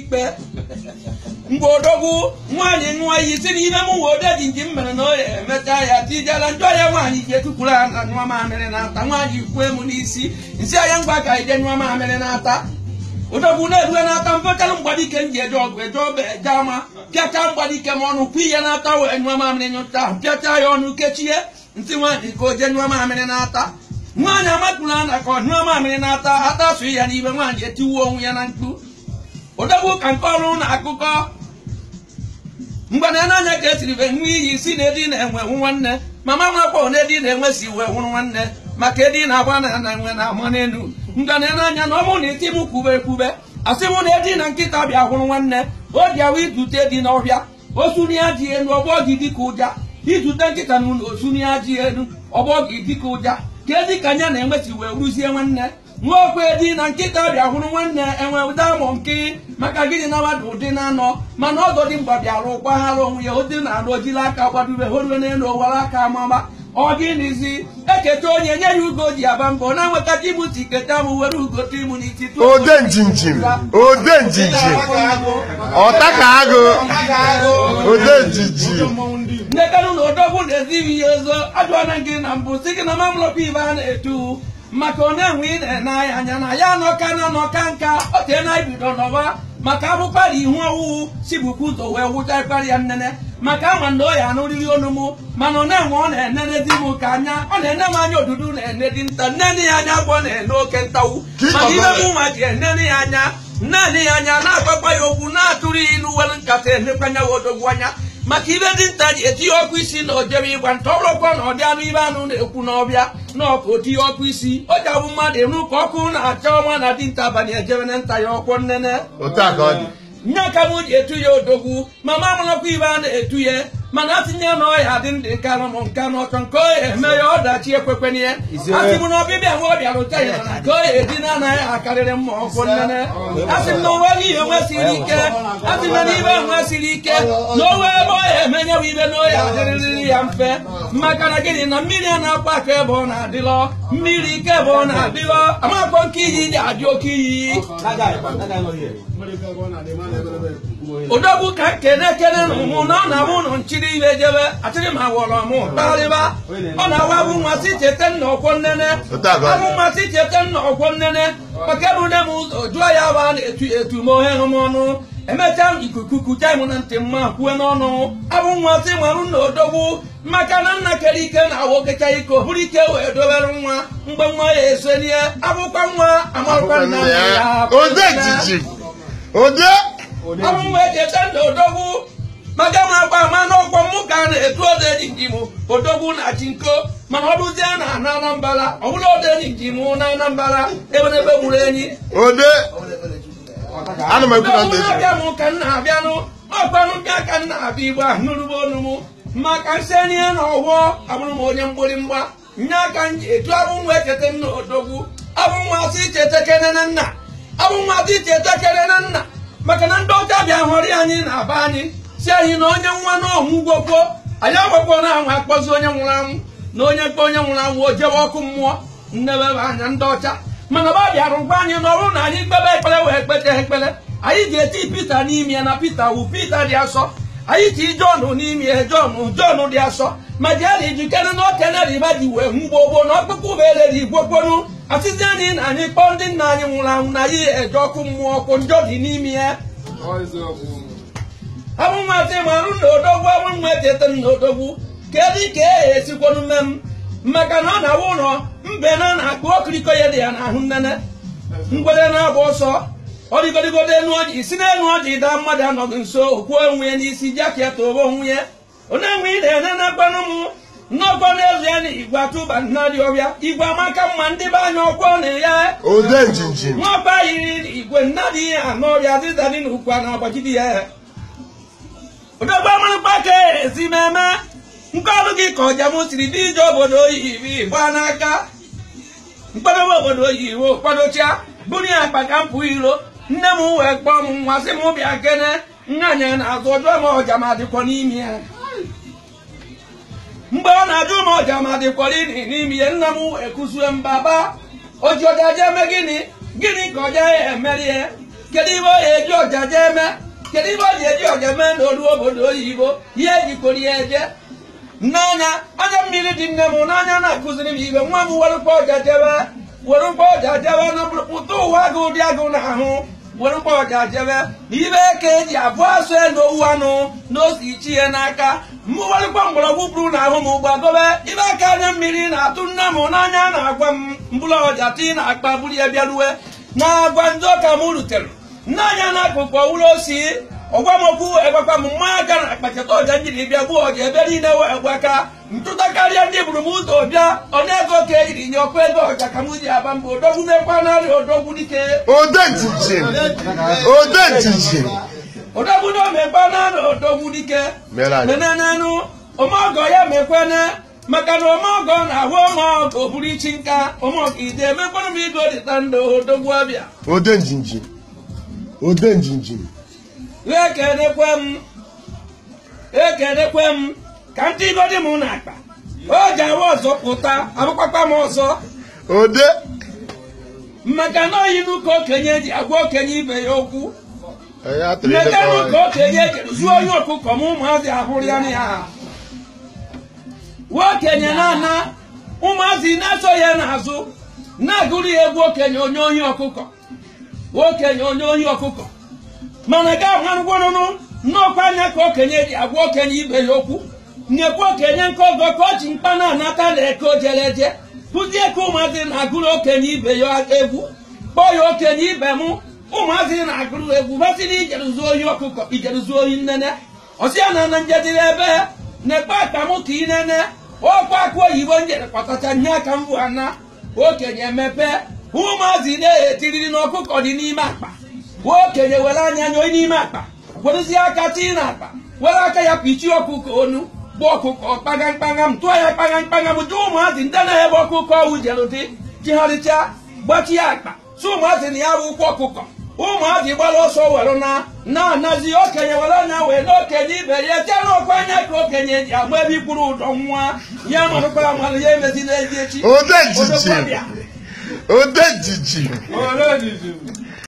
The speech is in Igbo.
ikpe mgbe odogwu nwaanyị nụọ iyi si n'ime m nwe ode ji nji mere na ọ emechaa ya tijela njọ ọhịa nwaanyị ike tukwuru ana nyụọ mamịrị na-ata nwaanyị kwue m n'isi nsị ahịa mgba ka ije nyụọ mamịrị na-ata na-erue na-ata mfekalụ mgbadike m ji eje ọgụ eje ọba eje ama pịachaa mgbadike m ọnụ kwu ihe na-ata wee nyụọ mamịrị nyụta pịacha ya ọnụ kechie ntị nwaanyị ka o jee nyụọ mamịrị na-ata nwaanyị amatụla na ka ọ nyụọ mamịrị na-ata ata ya n'ime nwaanyị etiwuo onwe ya na mkpu ụdọgbu ka nke ọrụ na akụkọ mgbe n'anya ka esiri be nwa iyi si na edi na-enwe nwanne mama nwakwa na edi na-enwe si wee nwụrụ nwanne maka edi na-agba na na enwe na ama n'elu mgbe na n'anya na ọmụ na isi m kwube ekwube asị m na edi na nkịta bịa hụrụ nwanne o ji awa idute dị n'ọhịa osuri ya ji elu ọgbọ gị dịka ụja idute nkịta na ụlọ osuri ya ji elu ọgbọ gị dịka ụja ka ezi ka anya na-enweti wee rụzie nwanne nwaokwe edi na nkịta bịa hụrụ nwanne enwe ụda amụ nke maka gịnị na mmadụ ụdị na-anọ mana ọdọ dị mgba bịara gbaghara onwe ya ụdị na-arụ ojila aka gbadobe horiwe n'elu owara aka amama ọ gịnịzi eketa onye nye ya ugo ji aba mbọ na nweta timuti keta m were ugo timu n'iti ode njinjim ode njinjim ọta ka agụ ode njinjim nnekere ụlọ odogwu na-ezighi ya ozo ajụọna gị na mbụ si gị na mamlọpụ ibe a na-etu maka onye na ị na-ene anya na ya nọka na nọka nka o tee na ibido n'ọba maka abụkpara ihu ọwụwụ si bukwu ụzọ wee wụcha ịkpara ya nnene maka ma na oya n'oriri onu m mana ọ na-enwe ọ na-enene di m ka anya ọ na-ene m anya odudu na-ene di nta nnene ya anya agwọ na-ene oke ntawu maka ihe m nwa ji enene ya anya naanị ya anya na-agbakwa ya okwu na-atụrụ ya ilu were nkata enekwa ya odogwu anya maka ibe dinta ji etinye ọkụ isi na ojebe ịgba nta ọrụkwa na ọdị anụ ibe anụ na-ekwu n'ọbịa na ọkụ di ọkụ isi o ji abụ mmadụ enu ka ọkụ na-acha ọnwa na dinta abalị ejebe na nta ya ọkwọ nnene nya ka etu ya odogwu ma ma nọkwa ibe a etu ya mana atinye na ọya dị ndị nka nụ nka n'ọchọ nke oya eme ya ọdachi ekwekwenye ya asịbụ na ọbịbịa nwa ọbịa rụta ya nke oya dị na anaghị akarịrị mma ọkụ nnene asị m na onwe ihe onwe siri ike asị na n'ibe onwe siri ike na onwe ebe ọya emenye bụ ibe na oya adịrịrị ya mfe maka na gịnị na mmiri a na-akpa aka ebe ọ na-adịlọ mmiri ike ebe ọ na-adịlọ amakpọ nke iyi dị adị oke iyi odogwu ka kene-kene mụ na ọ na mụ nụ nchiri ile jebe achịrị ma wọrọ mụ kparịba ọ na-awa bụ mmasị chete nna ọkwọ nnene abụ mmasị chete nna ọkwọ nnene maka ebu nne m ụzọ jụọ ya wa etu etu m ohe hụ m ọnụ emechaa ikuku kucha m na ntị mma kwue n'ọnụ abụ mmasị marụ na odobu maka na nna kere ike na awokecha iko bụrụ ike wee dobere nwa mgbe nwa ya esonie abụkwa nwa amarụkwa ya ọnwụ wee jete ndị odogwu maka ma agba ama n'ọkwọ mụ ka a na-etu oderi mụ odogwu na chinko mana ọ bụzie na na anambara ọ bụrụ oderi mụ na anambara eberebe gburu enyi abịa m ka nna abịanụ ọkpanụ bịa ka nna abịa igbo ahụ mụ ma ka maka nsenye na ọgwọ abụrụ m onye mgbirimgba nye aka m ji etu abụ nwa echeta nna odogwu abụ nwa asị icheta kere na nna abụ nwa asị icheta kere nna maka na ndị ọcha bịa hụrụ anyị na aba anyị si anyị na onye nwa n'ọmụgwọ kwuo anyị agbakpọ na anwụ akpọzi onye nwụrụ anwụ na onye mkpa onye nwụrụ anwụ o jewe ọkụ mmụọ nnebe anya ndị ọcha mana ọba bịara ngwa anyị n'ọrụ na anyị kpebe ekpere wee kpete ekpere anyị ga-eti pita n'ime na pita wu pita dị asọ anyị ti jọn n'ime ya jọn dị asọ ma jee na ijikere na okeneriba ji wee mgbogboo na ọkpụkpụ bụ ele igwe gbonu asịsịa dị anyị kpọọ ndị nna anyị nwụrụ anwụ na ya eje ọkụ mmụọ ọkụ njọ dị n'ime ya abụnwa sị ma arụ na odogwu abụnwa echeta na odogwu kedu ka e esikwanụ mme m maka na ọ na-awụ ụlọ mbe na na-akpụ okiriko ya dị ya n'ahụ nnene mgbede na-agba ọsọ ọ dịgodịgodo enu ọjị si n'elu ọjị daa mmadụ anọghị nso okwuo onwe ya n'isi jaket obe onwe ya onye enwe ị na-ene na mụ n'ọkọ n'ezie na igwe atụba nna dị ọbịa igwe amaka mma ndị be anya ọkwọ na ya ode yiri igwe nna ihe anọ ọbịa dịda dị n'ukwu a na-agbachidi ya odogbe mmanụkpa ka ezi meme nke ọrụ gị ka ọjamụ siri dị ije obodo oyibi gbaa n'aka mkpadobe obodo oyibo kwadocha buru ya akpa ka mpụ iro nne m wee kpọọ m nwa sị m bịa kene nna na-azụ ọjọọ ma ọja ma dịkwa n'ime ya mgbe ọ na-ajụ m ọja ma dịkwara ini n'ime ihe nna m ekuzue mbaba oji ọja eme gịnị gịnị ka ọja ya emerie kedu ibe ọ ya eji ọja jee eme kedu ibe ọ ji eji ọja mee na olu obodo oyibo ihe ejikwara ya eje n'anya anya mmiri dị nne m n'anya na-akụziri m ibe nwa m werụkwa ọja jebe werụkwa ọja jebe na pụta ụwa gị ụdị agụ na ahụ were mgbọrọja jebe na ibe ka eji abụọ asụ elu owu anụ n'osi ichie n'aka mmụwarịkwa mgbọrọgwụ bụrụ na ahụ m ụgbọ dobe ibe aka anya mmiri na-atụ nne m n'anya na-agwa m mgbọrọja tii na akpa buru ya bịaruwe na agwa ndị ọka m rutere nne anya na akụkụ ụlọ osi ọgwa m okwu egwakwa m mmanya aka na akpachata ọja njiri bịa gbuo ọja ebe niile we egwe aka ntụta karịa ndị buru m ụzọ bịa ego ka eyiri nye ọkụ ego ọja ka m ji aba mba odogwu mekwa narị odogwu dike odogwu na omekwa narị odogwu dike menenenụ omeọgọ ya mekwene maka na omeọgọ na-ahụ omeọgọ buru ichi nka omeọgọ ide emekwanụ m igo dịta ndụ odogwu ọbịa ode njinjin ekenekwe m m ka ndị igodi m na-akpa oge awa ọzọ pụta abụkpakpa m ọzọ ode maka na oyi n'ụka okenye ji agwa okenye ibe ya okwu maka n'ụka okenye zuo onye ọkụkọ m ụmụazị ahụrụ ya ya nwa okenye na-ana ụmụazị na-aso ya n'azụ na-agụrụ ya egwu okenye onye ohi ọkụkọ okenye onye ohi ọkụkọ mana ga agwarụgwarụrụ n'ọkwa anya ka okenye ji agwa okenye ibe ya okwu nyekwa okenye nke ọgọ ka o ji mkpa na-anata na eke ojeleje kụzie ka ụmụazị na-agụrụ okenye ibe ya egwu kpọọ ya okenye ibe mụ ụmụazị na-agụrụ egwu basịrị ijeruzuo ohi ọkụkọ ijeruzuo ohi nnene ọsịa na na njedire ebe na-ekpe akpa m ka inene ọkwa akụ oyibo njere kpatacha nye aka mbụ ana okenye mepe ụmụazị na-etiriri na ọkụkọ dị n'ime akpa nwa okenye were anya nyoi n'ime akpa werezie aka tii na akpa were aka ya kpichie ọkụkọ onu bụ ọkụkọ kpaga mkpagha tụọ ya kpaga mkpagha m dị ụmụazị ndị na-ebe ọkụkọ ọwụ jerụdị jigharịcha gbachi ya akpa si ụmụazị na ya bụ ụkwụ ọkụkọ ụmụazị gbara ọsọ were na na-anazi okenye were anya wee na okenye ibe ya jee n'ọkụ anya ka okenye ji agba ebe ikwuru ụdọ nwa ya marụkwa amalụ ya emezi n'ezi echi odejiji